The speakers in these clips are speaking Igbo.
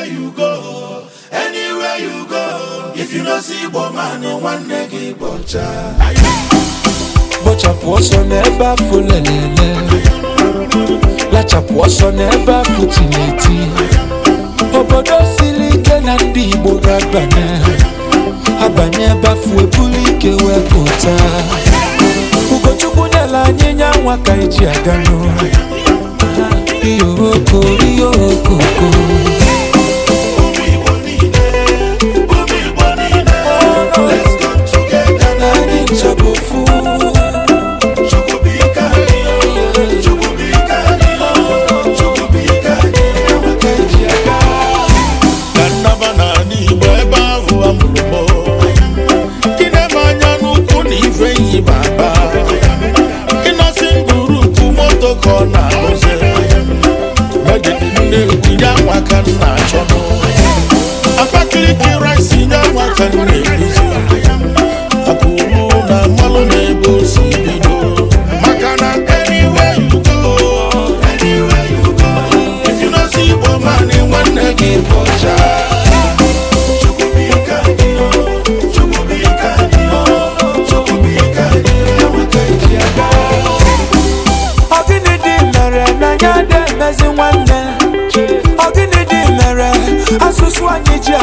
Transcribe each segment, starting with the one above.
anywhere you go anywhere you go if you no see igbo man nwanne gị bọcha kpochapụ ọsọ n'ebe afụ lelele lachapụ ọsọ n'ebe afọ tineti obodo siri ike na ndị igbo ga-abanye abanye ebe afụ ebulu ike wee pụta ugochukwu nyela anyị nya nwa ka eji aga n'ụlọ ka na na-arụzi ndị ya nwa ka achọ n'ụwa Abakaliki rice ya ndị ka nne ezi nwanne ọ gịnị dị mere asụsụ anyị ji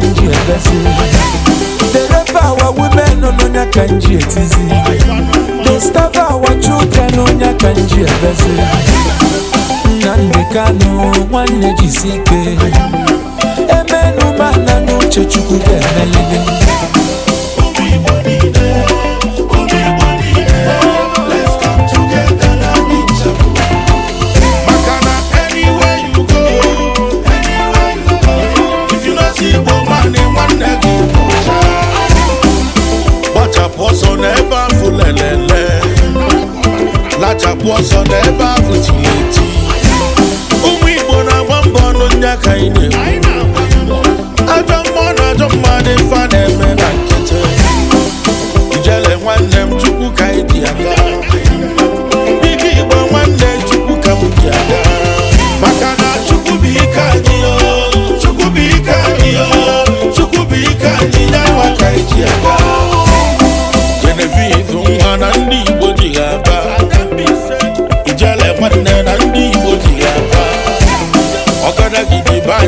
kanji egazi dereba our women onye kanji etizi the staff children onye kanji egazi nnamdị kanụ nwanne jisi ike na n'uche chukwu ga kachapụ ọsọ n'ebe ahụ tiri eti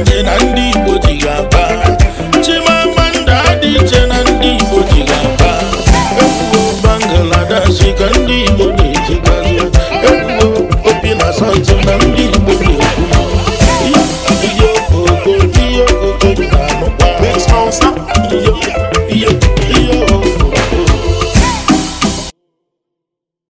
ndị Igbo chimamanda dị iche na ndị Igbo ji aba ebubo ndị Igbo na obi na